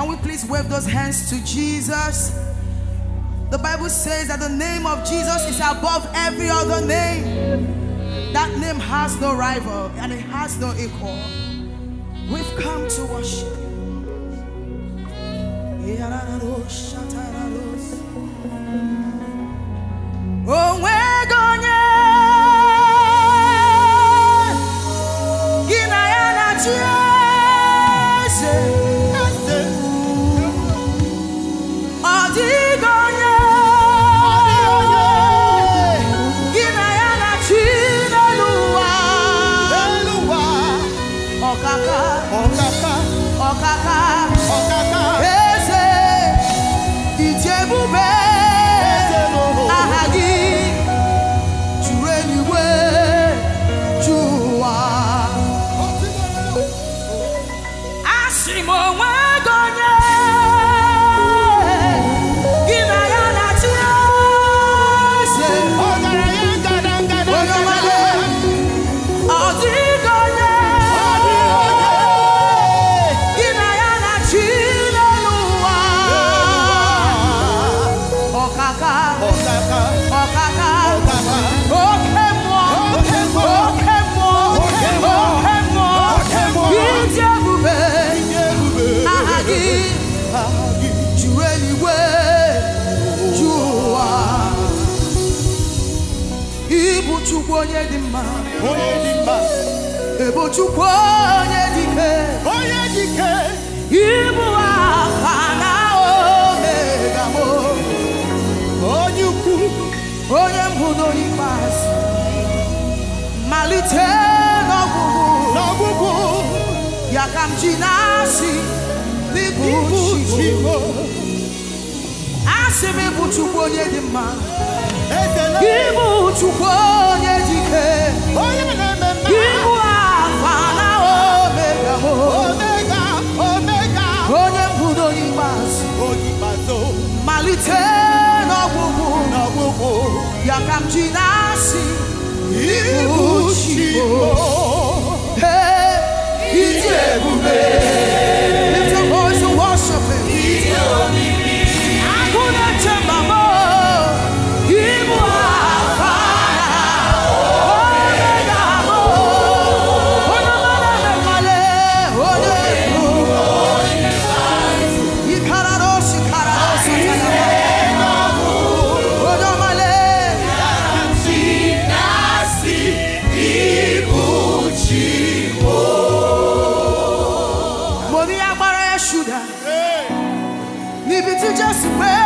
Can we please wave those hands to Jesus? The Bible says that the name of Jesus is above every other name. That name has no rival and it has no equal. We've come to worship you. my life. onye dị mma onye dị mma ebo chukwu onye dị ike onye dị ike ibu aha na omega m onye ukwu onye mbụ n'onye ikpeazụ malite n'ọgwụgwụ n'ọgwụgwụ ya ka m ji na-asị n'ịbụ chigbo asị m ịbụ chukwu onye dị mma ịbụ chukwu camminarsi nasce ultimo e, e, e, e, e, Senhor.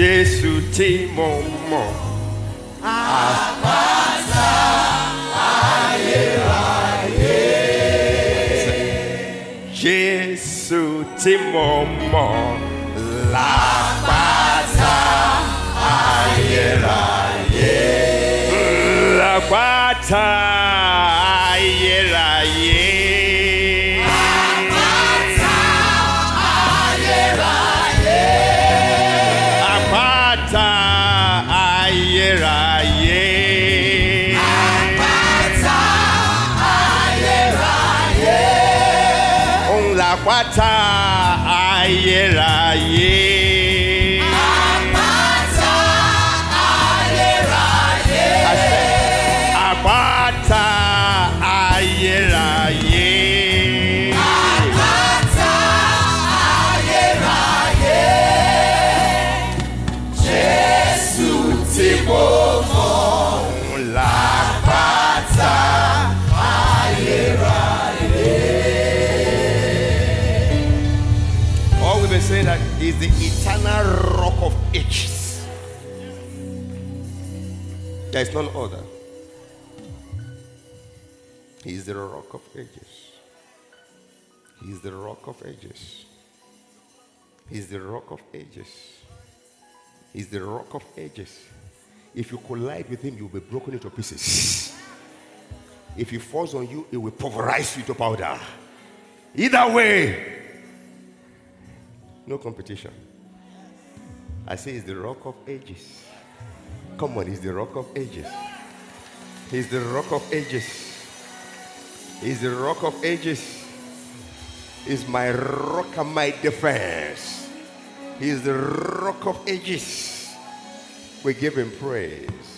Jésù tí mo mọ̀. Àpáta ayérayé. Jésù tí mo mọ̀ lápáta ayérayé. La lapata àpáta ayérayé. àpáta ayérayé. àṣẹ àpáta ayérayé. àpáta ayérayé. Jésù ti bọ́. is the eternal rock of ages. There is none other. He is the rock of ages. He is the rock of ages. He is the rock of ages. He is the rock of ages. If you collide with him, you'll be broken into pieces. If he falls on you, it will pulverize you to powder. Either way, no competition. I say it's the rock of ages. Come on, he's the rock of ages. He's the rock of ages. He's the rock of ages. He's my rock and my defense. He's the rock of ages. We give him praise.